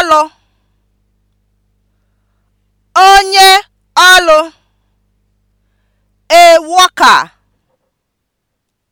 ọlụ onye ọlụ a worker